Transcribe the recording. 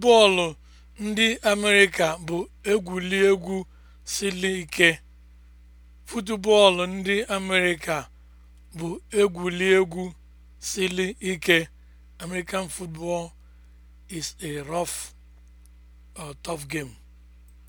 Bọọlụ ndị Amerịka bụ egwuregwu siri ike. Futubọọlụ ndị Amerịka bụ siri ike. American football is a rough or uh, tough game.